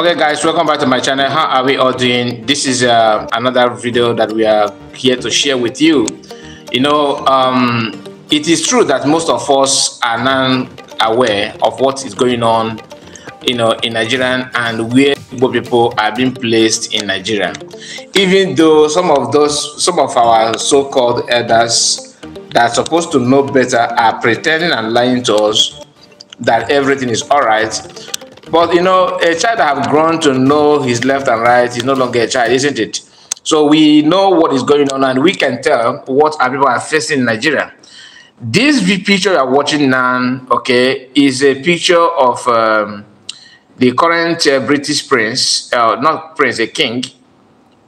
okay guys welcome back to my channel how are we all doing this is uh, another video that we are here to share with you you know um, it is true that most of us are non-aware of what is going on you know in nigeria and where people are being placed in nigeria even though some of those some of our so-called elders that are supposed to know better are pretending and lying to us that everything is all right but you know, a child that have grown to know his left and right is no longer a child, isn't it? So we know what is going on, and we can tell what our people are facing in Nigeria. This picture you are watching now, okay, is a picture of um, the current uh, British prince, uh, not prince, a king,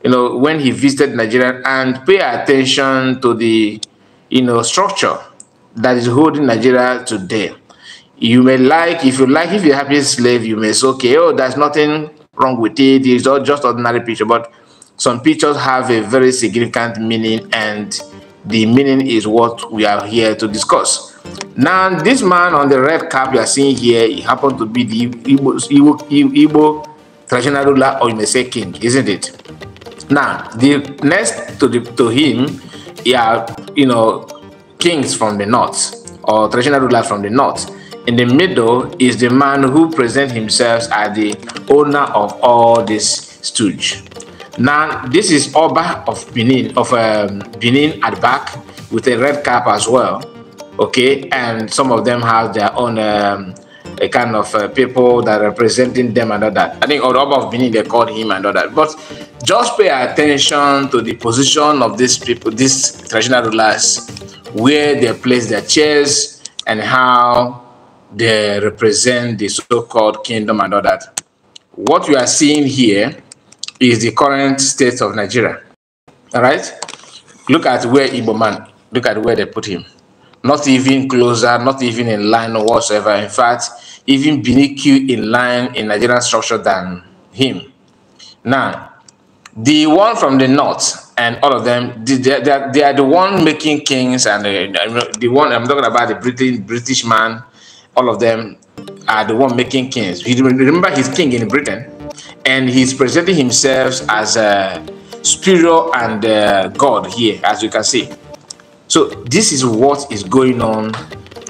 you know, when he visited Nigeria, and pay attention to the, you know, structure that is holding Nigeria today you may like if you like if you're happy slave you may say okay oh there's nothing wrong with it it's all just ordinary picture but some pictures have a very significant meaning and the meaning is what we are here to discuss now this man on the red cap you are seeing here he happened to be the Igbo, Igbo, Igbo traditional ruler or you may say king isn't it now the next to the to him yeah you know kings from the north or traditional rulers from the north in the middle is the man who presents himself as the owner of all this stooge. Now, this is Oba of Benin, of um, Benin at back with a red cap as well. Okay, and some of them have their own um, a kind of uh, people that are representing them and all that. I think Oba of Benin, they called him and all that. But just pay attention to the position of these people, these traditional rulers, where they place their chairs and how they represent the so-called kingdom and all that. What you are seeing here is the current state of Nigeria. All right? Look at where Igbo man, look at where they put him. Not even closer, not even in line or whatsoever. In fact, even beneath you in line in Nigerian structure than him. Now, the one from the north and all of them, they, they, they are the one making kings and uh, the one, I'm talking about the British, British man all of them are the one making kings. Remember, he's king in Britain, and he's presenting himself as a spiritual and a god here, as you can see. So this is what is going on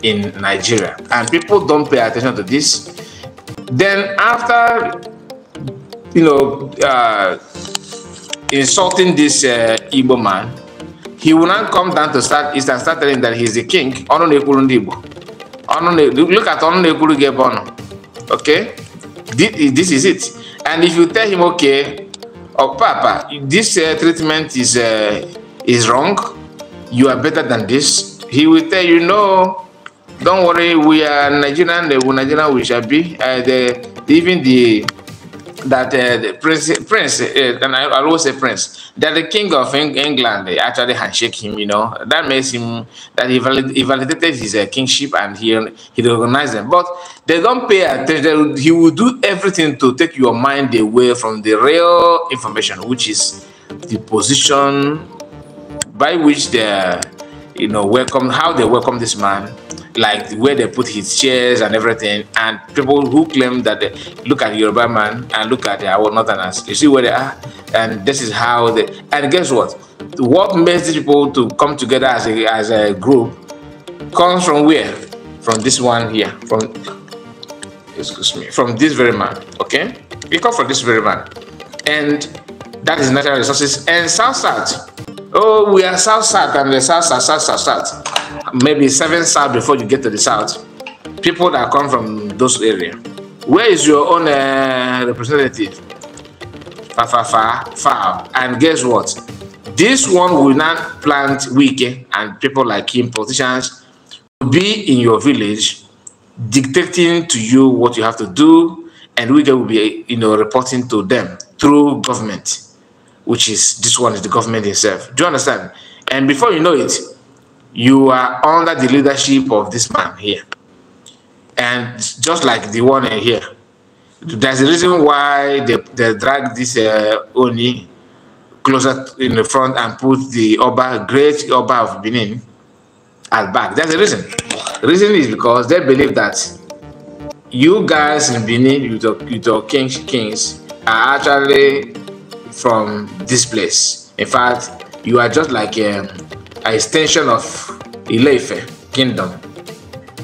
in Nigeria, and people don't pay attention to this. Then after, you know, uh, insulting this uh, Igbo man, he will not come down to start, and start telling that he's the king. Igbo. ọnụ look at ọnụ na-ekwuru gị okay this is it and if you tell him okay oh papa this uh, treatment is uh, is wrong you are better than this he will tell you no don't worry we are nigerian the nigerian we shall be uh, the, even the that uh, the prince, prince, uh, and I, always say prince, that the king of Eng England they actually handshake him. You know that makes him that he, valid, he validated his uh, kingship and he he recognized them. But they don't pay attention. He will do everything to take your mind away from the real information, which is the position by which they, you know, welcome how they welcome this man like where they put his chairs and everything. And people who claim that they look at Yoruba man and look at our Northerners, you see where they are, and this is how they. And guess what? What makes these people to come together as a as a group comes from where? From this one here. From excuse me. From this very man. Okay, it comes from this very man, and that is natural resources and South South. Oh, we are south south and the south south south south south. Maybe seven south before you get to the south. People that come from those areas. Where is your own uh, representative? Far far far far. And guess what? This one will not plant Wiki eh, and people like him, politicians, will be in your village, dictating to you what you have to do, and we will be, you know, reporting to them through government which is this one is the government itself. Do you understand? And before you know it, you are under the leadership of this man here. And just like the one here, there's a reason why they, they drag this uh, Oni closer in the front and put the Oba, great Oba of Benin, at back. There's a reason. The reason is because they believe that you guys in Benin, you talk, you kings, kings, are actually from this place. In fact, you are just like a, um, a extension of Ileife kingdom.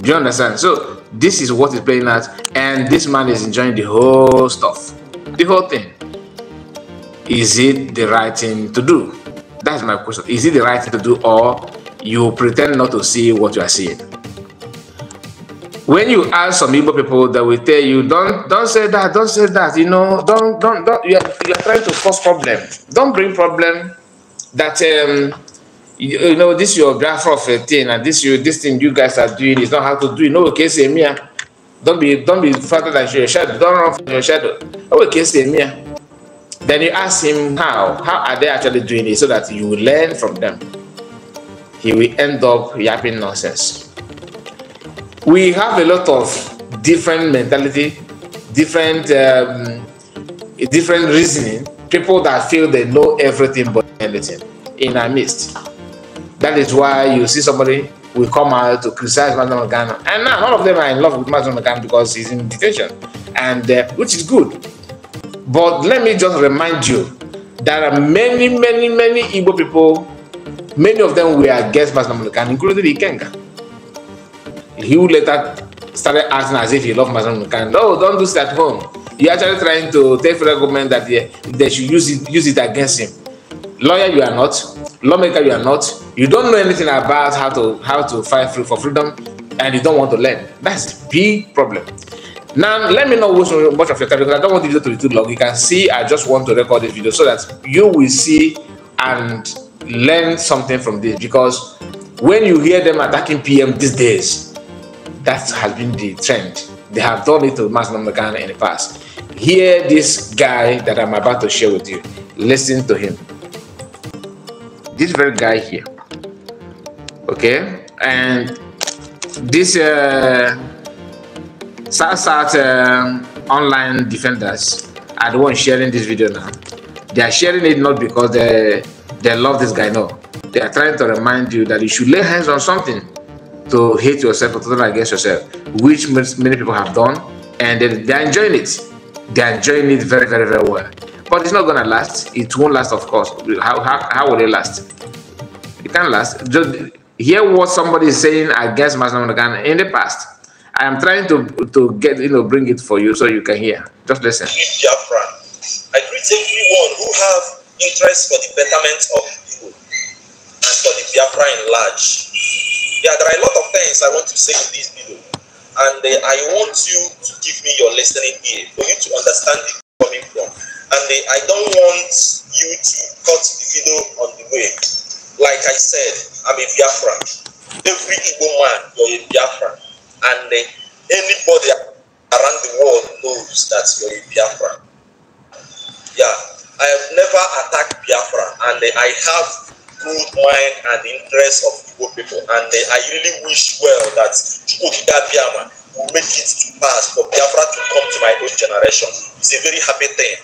Do you understand? So this is what is playing out, and this man is enjoying the whole stuff, the whole thing. Is it the right thing to do? That's my question. Is it the right thing to do, or you pretend not to see what you are seeing? when you ask some Igbo people that will tell you, don't don't say that, don't say that, you know, don't don't don't you are, you are trying to cause problem. Don't bring problem that um you, you know this your graph of a thing and this you this thing you guys are doing is not how to do it. No okay, say me. Ah. Don't be don't be further than your shadow, don't run from your shadow. Oh, okay, say me. Ah. Then you ask him how. How are they actually doing it so that you learn from them? He will end up yapping nonsense we have a lot of different mentality, different um, different reasoning. People that feel they know everything but anything in our midst. That is why you see somebody will come out to criticize Madam Ghana, and now all of them are in love with Madam Ghana because he's in detention, and uh, which is good. But let me just remind you, there are many, many, many Igbo people. Many of them were against Madam Ghana, including the Ikenga. he would later started acting as if he loved Mazen Mukan. No, don't do this at home. You're actually trying to tell the government that they, they should use it, use it against him. Lawyer, you are not. Lawmaker, you are not. You don't know anything about how to how to fight for freedom, and you don't want to learn. That's the big problem. Now, let me know which much of your time because I don't want the video to be too long. You can see I just want to record this video so that you will see and learn something from this because when you hear them attacking PM these days, that has been the trend. They have done it to Mass Ghana in the past. Hear this guy that I'm about to share with you. Listen to him. This very guy here. Okay? And this uh, South South uh, online defenders are the ones sharing this video now. They are sharing it not because they, they love this guy, no. They are trying to remind you that you should lay hands on something to hate yourself or to turn against yourself, which many people have done, and then they're enjoying it. They're enjoying it very, very, very well. But it's not gonna last. It won't last, of course. How how, how will it last? It can't last. Just hear what somebody is saying against Masnam Nagan in the past. I am trying to to get you know bring it for you so you can hear. Just listen. I greet everyone who have interest for the betterment of people and for the Biafra in large. Yeah, there are a lot things I want to say in this video. And uh, I want you to give me your listening ear for you to understand it coming from. And uh, I don't want you to cut the video on the way. Like I said, I'm a Biafra. Every Igbo man, you're a Biafra, And uh, anybody around the world knows that you're a Biafra. Yeah, I have never attacked Biafra, and I have good mind and the interest of Igbo people. And uh, I really wish well that Chukwukida Biama will make it to pass for Biafra to come to my own generation. It's a very happy thing.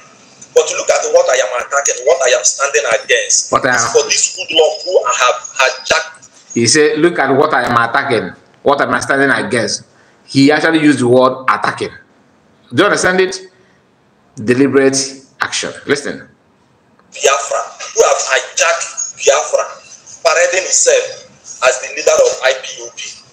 But look at what I am attacking, what I am standing against. What I For this good love who I have hijacked. He said, look at what I am attacking, what I am standing against. He actually used the word attacking. Do you understand it? Deliberate action. Listen. Biafra, who have hijacked Biafra, parading himself as the leader of IPUB.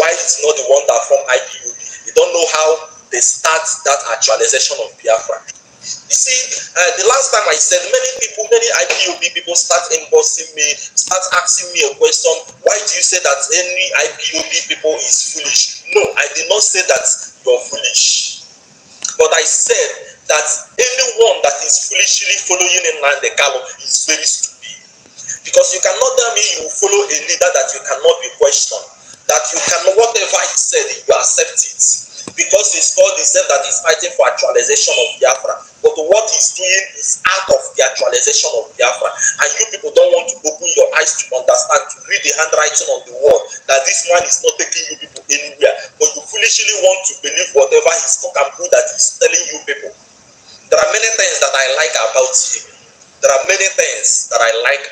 Why he's not the one that formed IPUB? They don't know how they start that actualization of Biafra. You see, uh, the last time I said, many people, many IPOB people start embossing me, start asking me a question, why do you say that any IPOB people is foolish? No, I did not say that you're foolish. But I said that anyone that is foolishly following Nnamdi Kalu is very stupid. Because you cannot tell me you follow a leader that you cannot be questioned, that you can whatever he said, you accept it. Because he's called himself that he's fighting for actualization of Biafra. But what he's doing is out of the actualization of Biafra. And you people don't want to open your eyes to understand, to read the handwriting on the wall, that this man is not taking you people anywhere. But you foolishly want to believe whatever he's talking that he's telling you people. There are many things that I like about him. There are many things that I like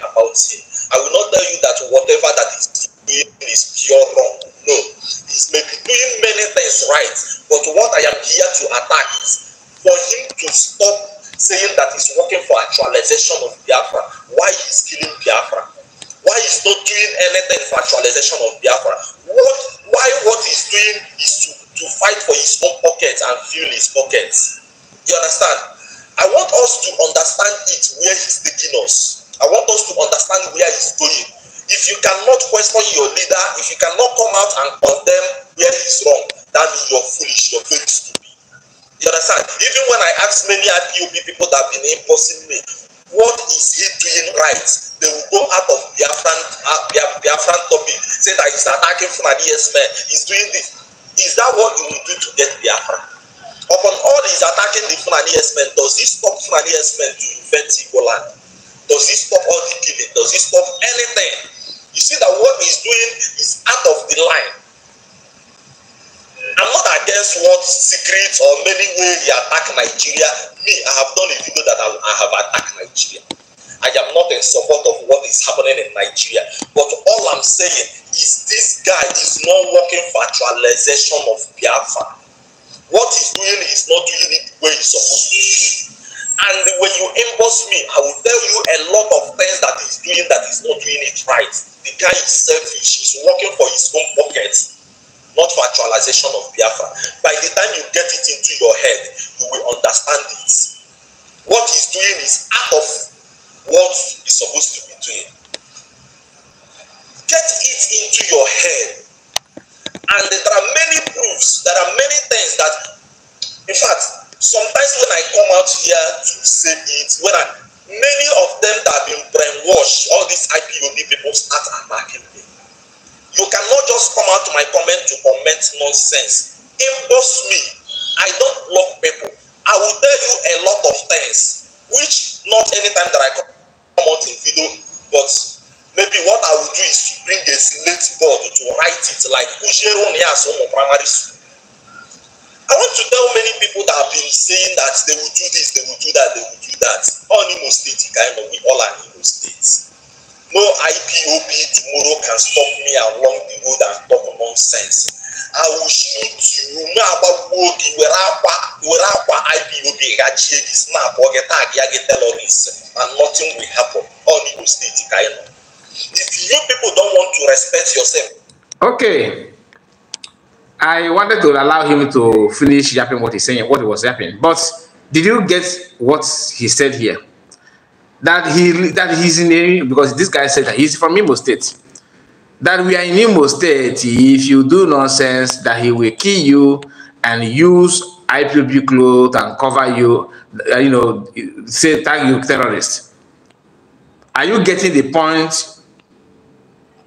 us to understand it where he's taking us. I want us to understand where he's going. If you cannot question your leader, if you cannot come out and condemn where he's wrong, that means you're foolish, your faith stupid. You understand? Even when I ask many IPOB people that have been imposing me, what is he doing right? They will go out of Biafran, uh, Biafran topic, say that he's attacking from a D.S. man, he's doing this. Is that what you will do to get Biafran? Upon all his attacking the Fulani herdsmen, does he stop Fulani herdsmen to invent Igboland? Does he stop all the killing? Does he stop anything? You see that what he's doing is out of the line. I'm not against what secret or many way they attack Nigeria. Me, I have done a video that I, I have attacked Nigeria. I am not in support of what is happening in Nigeria. But all I'm saying is this guy is not working for actualization of Biafra what he's doing is not doing it the way he's supposed to and when you inbox me i will tell you a lot of things that he's doing that he's not doing it right the guy is selfish he's working for his own pocket not for actualization of biafra by the time you get it into your head you will understand it what he's doing is out of what he's supposed to be doing get it into your head And there are many proofs, there are many things that, in fact, sometimes when I come out here to say it, when I, many of them that have been brainwashed, all these IPOB people start attacking me. You cannot just come out to my comment to comment nonsense. Inbox me. I don't block people. I will tell you a lot of things, which not any time that I come out in video, but maybe what I will do is to bring a slate board to write it like has on primary school. I want to tell many people that have been saying that they will do this, they will do that, they will do that. All Imo State, kind of, we all are Imo states. No IPOB tomorrow can stop me along the road and talk nonsense. I will shoot you. No about wogi, where akwa IPOB gachie this snap or get tag, get terrorists, and nothing will happen. All Imo State, kind of. If you people don't want to respect yourself. Okay. I wanted to allow him to finish yapping what he's saying, what he was yapping. But did you get what he said here? That he that he's in a, because this guy said that he's from Imo State. That we are in Imo State. If you do nonsense, that he will kill you and use IPB clothes and cover you, uh, you know, say tag you terrorist. Are you getting the point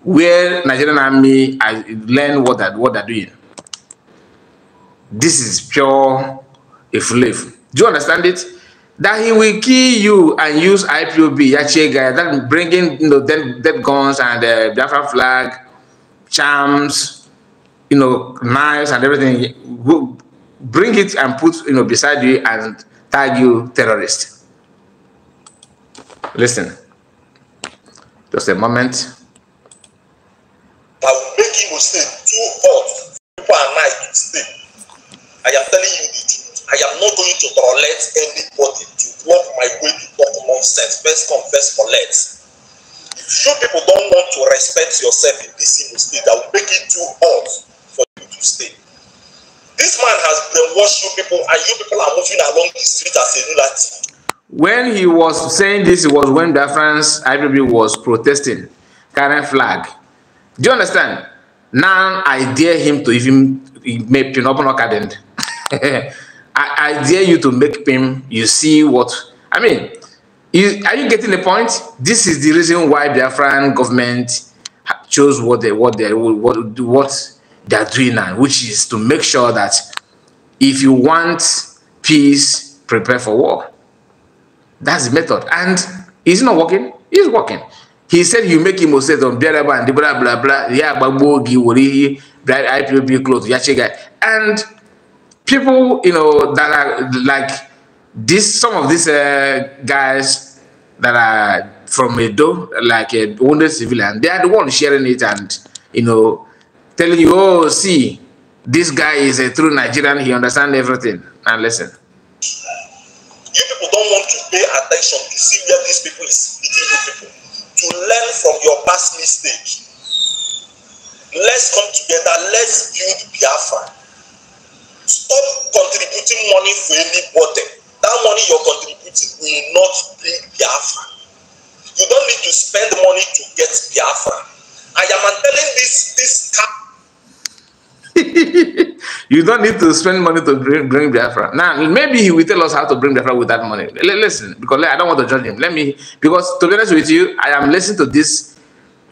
where Nigerian army I learn what that what they're doing. This is pure you live. Do you understand it? That he will kill you and use IPOB, Yachie guy, that bringing you know dead, dead guns and the uh, Biafra flag, charms, you know, knives and everything. Go, bring it and put you know beside you and tag you terrorist. Listen, just a moment that will make you sleep too hot. People are nice to sleep. I am telling you the truth. I am not going to tolerate anybody to walk my way to talk nonsense. First come, first collect. If you people don't want to respect yourself in this Imo state, that will make it too hot for you to stay. This man has brainwashed you people, and you people are moving along the street as a lunatic. When he was saying this, it was when the France IPB was protesting, current flag. Do you understand? Now I dare him to even make Pinopino cadent. I, I dare you to make him, you see what, I mean, you, are you getting the point? This is the reason why the Biafran government chose what they what they what what they are doing now, which is to make sure that if you want peace, prepare for war. That's the method, and it's not working. It's working he said you make him say some blah blah blah blah blah yeah bagbogi wori bright IPOB clothes yachiga and people you know that are like this some of these uh, guys that are from Edo like a uh, wounded civilian they are the ones sharing it and you know telling you oh see this guy is a true Nigerian he understands everything and listen you people don't want to pay attention to see where these people is eating people to learn from your past mistake. Let's come together, let's build Biafra. Stop contributing money for anybody. That money you're contributing will not build Biafra. You don't need to spend money to get Biafra. I am telling this this cap you don't need to spend money to bring, bring Biafra. Now, maybe he will tell us how to bring Biafra with that money. L listen, because I don't want to judge him. Let me, because to be honest with you, I am listening to this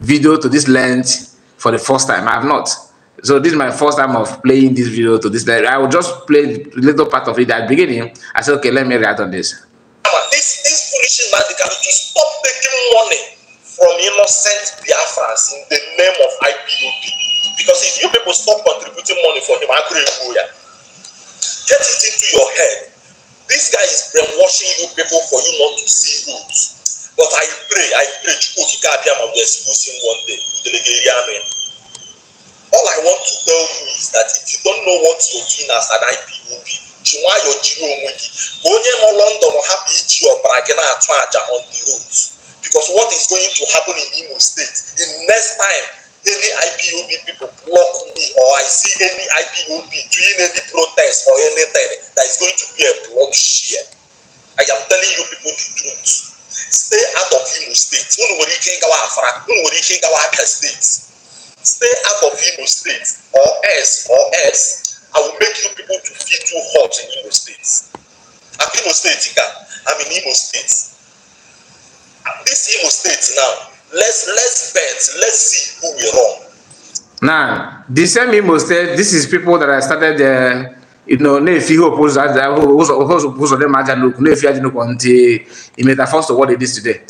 video, to this lens for the first time. I have not. So this is my first time of playing this video to this lens. I will just play a little part of it at the beginning. I said, okay, let me react on this. This, this foolish man, they can stop taking money from innocent Biafrans in the name of IPOB. Because if you people stop contributing money for him, I couldn't could ya. Get it into your head. This guy is brainwashing you people for you not to see rules. But I pray, I pray, Chukwukikabiyam will expose him one day. All I want to tell you is that if you don't know what you're doing as an IPOB, ji nwayọọ jiri onwe gị ka onye nọ london or iji ọbara gị na-atụ àjà on the road because what is going to happen in imo state in next time any IPOB people block me or I see any IPOB doing any protest or anything, that is going to be a block share. I am telling you people the truth. Stay out of Imo State. Unu nwere ike ịgawa Afara, unu nwere ike ịgawa Abia State. Stay out of Imo State or else or else I will make you people to feel too hot in Imo State. I'm Imo State ka, I'm in Imo State. This Imo State now let's let's bet let's see who will wrong. now the same imo state this is people that i started uh, you know na-efi ihe opozo aja ụzọ ụzọ dị ma aja n'okwu na-efi aja n'okwu until e made a first of what it is today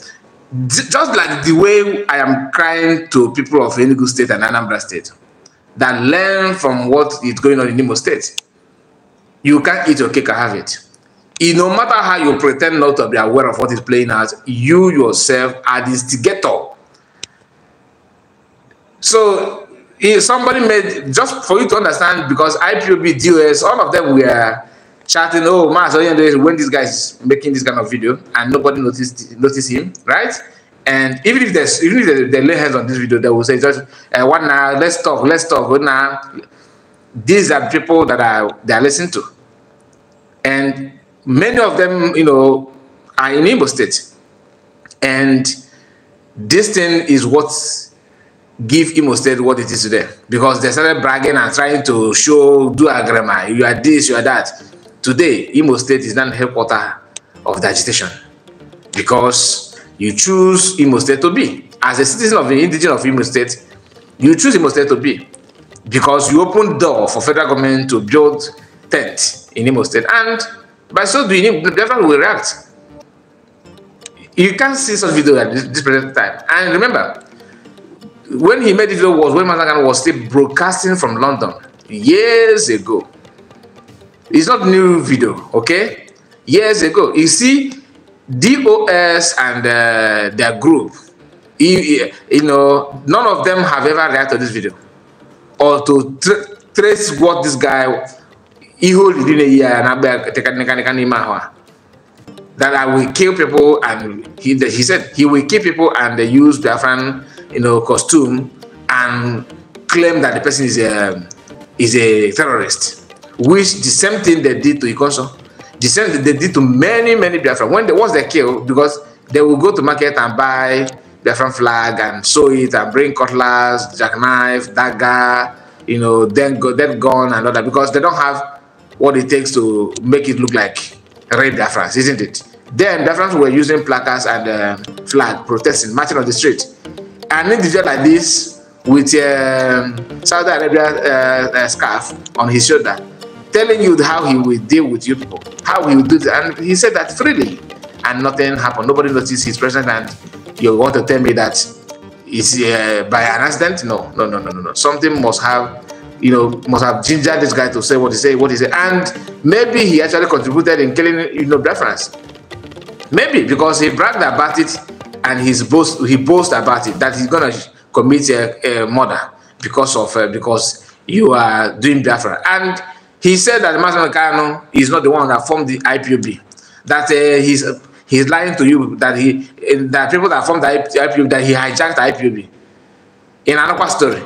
just like the way i am crying to people of enugu state and anambra state that learn from what is going on in imo state you can't eat your cake and have it it no matter how you pretend not to be aware of what is playing out you yourself are the instigator So somebody made just for you to understand because IPOB, dealers, all of them were chatting. Oh, Mas when this guys making this kind of video and nobody noticed noticed him, right? And even if there's even if they, lay hands on this video, they will say just uh, one now. Let's talk. Let's talk. One now. These are people that are they are listening to, and many of them, you know, are in Igbo state, and this thing is what's give Imo State what it is today because they started bragging and trying to show, do grammar. you are this, you are that. Today, Imo State is not headquarter of the agitation because you choose Imo State to be. As a citizen of the indigenous of Imo State, you choose Imo State to be because you open door for federal government to build tent in Imo State and by so doing, the government will react. You can't see such video at this present time. And remember, when he made it was when Managan was still broadcasting from London years ago. It's not new video, okay? Years ago. You see, DOS and uh, their group, you, you, know, none of them have ever reacted to this video or to tra trace what this guy that I will kill people and he, he said he will kill people and they use fan you know, costume and claim that the person is a, is a terrorist, which the same thing they did to Ikoso, the same thing they did to many, many Biafran. When they was the kill, because they will go to market and buy Biafran flag and sew it and bring cutlass, jackknife, dagger, you know, then go, then gun and all that, because they don't have what it takes to make it look like real Biafrans, isn't it? Then Biafrans were using placards and um, flag protesting, marching on the street an individual like this with a um, Saudi Arabia uh, uh, scarf on his shoulder, telling you how he will deal with you people, how he will do that. And he said that freely, and nothing happened. Nobody noticed his presence. And you want to tell me that uh, by an accident? No, no, no, no, no, no. Something must have, you know, must have gingered this guy to say what he say, what he say, and maybe he actually contributed in killing, you know, Biafrans. Maybe because he bragged about it and he's boast he boasts about it that he's gonna commit a, a murder because of uh, because you are doing Biafra. And he said that Mazen Kano is not the one that formed the IPOB. That uh, he's he's lying to you that he that people that formed the IPOB that he hijacked the IPOB. In another story,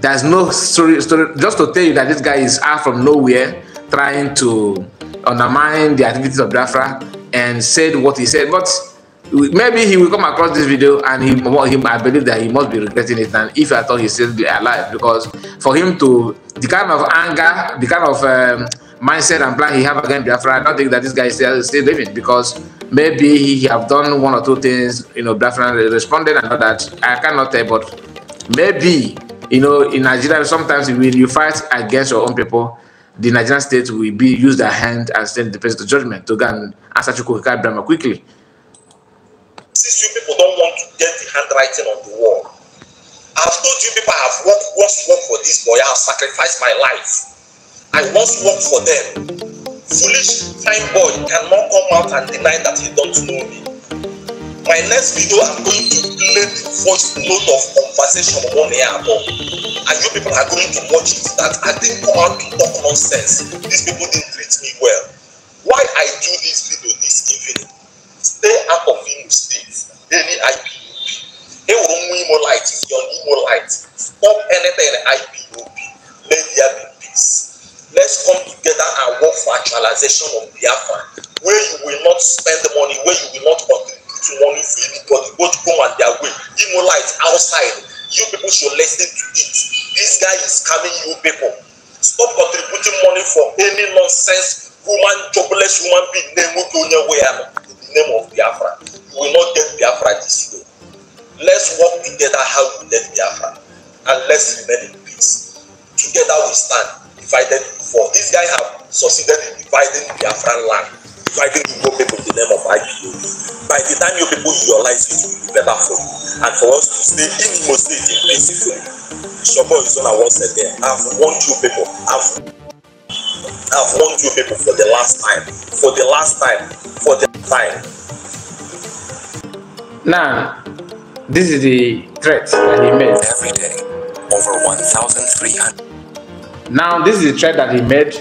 there's no story, story just to tell you that this guy is out from nowhere trying to undermine the activities of Biafra and said what he said, but maybe he will come across this video and he, he I believe that he must be regretting it and if I thought he still be alive because for him to the kind of anger the kind of um, mindset and plan he have against Biafra I don't think that this guy is still, still living because maybe he have done one or two things you know Biafra responded and all that I cannot tell but maybe you know in Nigeria sometimes when you fight against your own people the Nigerian state will be use their hand and send the person to judgment to go and answer Chukwuka quickly notice you people don't want to get the handwriting on the wall. I've told you people I've worked, once worked for this boy, I've sacrificed my life. I once work for them. Foolish fine boy cannot come out and deny that he don't know me. My next video, I'm going to play the first note of conversation on air above. And you people are going to watch it that I didn't come out to talk nonsense. These people didn't treat me well. Why I do this video this evening Stay out of Imo State, any IPOB. Ewu Imo light is your Imo light. Stop anything IPOB. Let there be peace. Let's come together and work for actualization of Biafra, where you will not spend money, where you will not contribute money for anybody, Go to come on their way. Imo light outside. You people should listen to it. This guy is coming, you people. Stop contributing money for any nonsense human jobless human being na-enweta onye nwe ya name of Biafra. we will not get Biafra this way. Let's work together how we left Biafra and let's remain in peace. Together we stand, divided before. This guy have succeeded in dividing Biafran land, dividing Igbo people in the name of IPOB. By the time you people realize it, it will be better for you. And for us to stay in most Imo State is on our Izona once again, I've warned you people. I've I've warned you people for the last time, for the last time, for the time. Now, this is the threat that he made. Every day, over 1,300. Now, this is the threat that he made,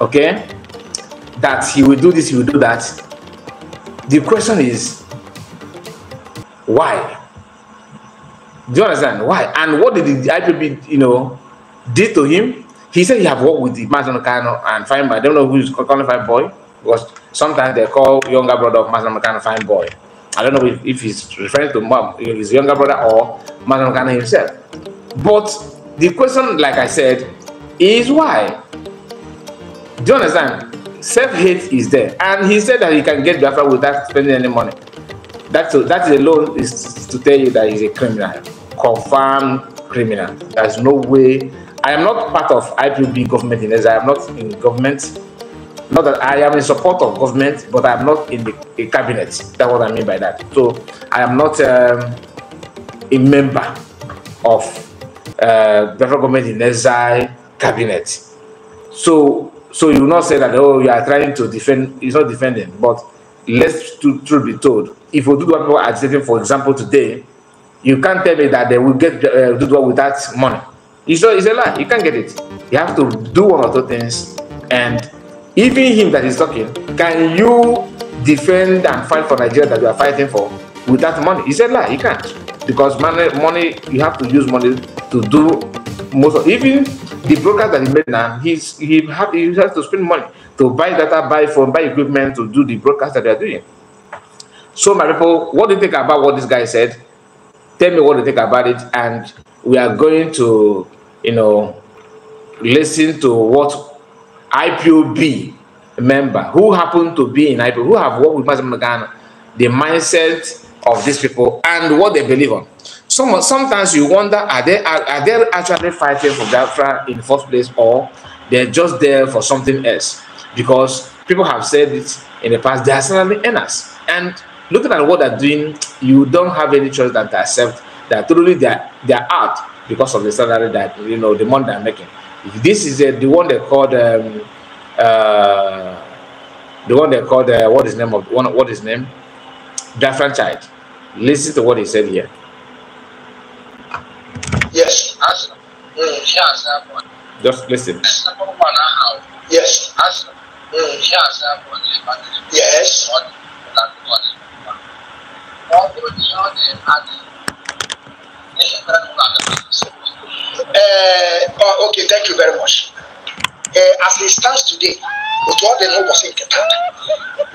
okay? That he will do this, he will do that. The question is, why? Do you understand? Why? And what did the IPB, you know, did to him? He said he have worked with the Mazan and Fine Boy. I don't know who's calling Fine Boy because sometimes they call younger brother of Mazan Fine Boy. I don't know if, if he's referring to mom, his younger brother or Mazan himself. But the question, like I said, is why? Do you understand? Self-hate is there. And he said that he can get Biafra without spending any money. That's that alone is to tell you that he's a criminal, confirmed criminal. There's no way I am not part of IPB government in I am not in government. Not that I am in support of government, but I am not in the, cabinet. That's what I mean by that. So I am not um, a member of uh, the government in exile cabinet. So so you will not say that oh you are trying to defend. It's not defending, but let's to, truth be told, if we do what people are agitating, for example, today, you can't tell me that they will get uh, do what without money. It's a, it's a lie. You can't get it. You have to do one or two things. And even him that is talking, can you defend and fight for Nigeria that you are fighting for without money? He said, lie. You can't. Because money, money, you have to use money to do most of even the broker that he made now, he's he have he has to spend money to buy data, buy phone, buy equipment to do the broadcast that they are doing. So my people, what do you think about what this guy said? Tell me what you think about it, and we are going to you know, listen to what IPOB member who happen to be in IPOB, who have worked with Mazda Ghana, the mindset of these people and what they believe on. Some, sometimes you wonder, are they, are, are they actually fighting for Biafra in the first place or they're just there for something else? Because people have said it in the past, they are certainly earners. And looking at what they're doing, you don't have any choice than to accept that truly they they are out because of the salary that you know the money I'm making. This is uh, the one they called um, uh, the one they called uh, what is name of one what is name Biafran child. Listen to what he said here. Yes. Just listen. Yes. Yes. Yes. Uh, okay, thank you very much. Uh, as it stands today, with what the law was intended,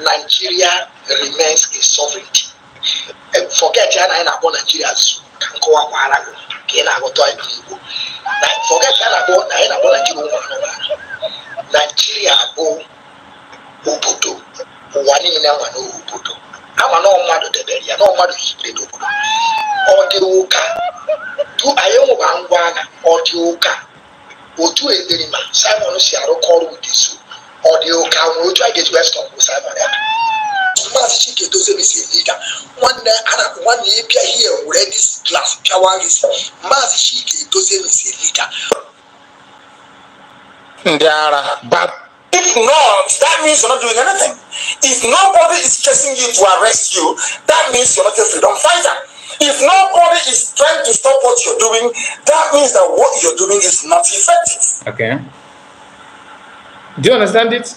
Nigeria remains a sovereignty. And eh, forget ya na na Nigeria as nkowa kwara go. Ke na go to Igbo. forget ya na go na na Nigeria go Ubuntu. Nigeria go obodo. Ụwa niile nwa ama na mmadụ debere ya na mmadụ higbere n'obodo ọ dị ụka du anyị nwụba ngwa agha ọ dị ụka otu eberima simon si arụkọ ọrụ udesu ọ dị ụka nwere otu a ga-eji westọn bụ simon ya maazị chike dozemi si liga nwanne ana nwanne ịbịa hie were dis glas pịawa gis maazị chike dozemi si liga ndị ara bat If not, that means you're not doing anything. If nobody is chasing you to arrest you, that means you're not a freedom fighter. If nobody is trying to stop what you're doing, that means that what you're doing is not effective. Okay. Do you understand it?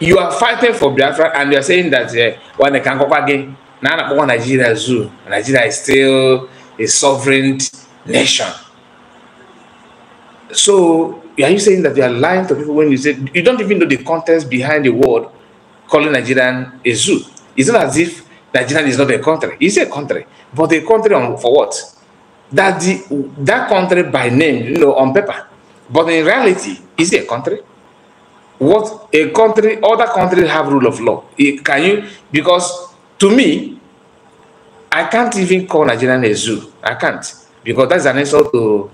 You are fighting for Biafra and you are saying that uh, when they can go back again, now that Nigeria is Nigeria is still a sovereign nation. So are you saying that you are lying to people when you say you don't even know the context behind the word calling Nigerian a zoo? It's not as if Nigeria is not a country. It's a country, but a country on, for what? That the that country by name, you know, on paper, but in reality, is it a country. What a country, other countries have rule of law. It, eh, can you? Because to me, I can't even call Nigeria a zoo. I can't because that's an insult to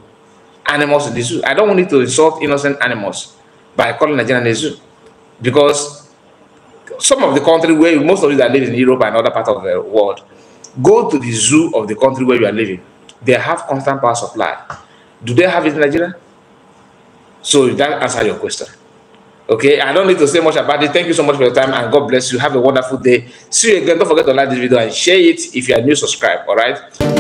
animals in the zoo. I don't want to insult innocent animals by calling Nigeria a zoo. Because some of the country where most of you that live in Europe and other parts of the world, go to the zoo of the country where you are living. They have constant power supply. Do they have it in Nigeria? So that answer your question. Okay, I don't need to say much about it. Thank you so much for your time and God bless you. Have a wonderful day. See you again. Don't forget to like this video and share it. If you are new, subscribe. All right.